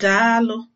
Daalụ!